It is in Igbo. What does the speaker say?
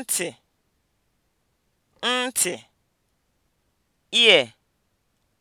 ntị ntị ear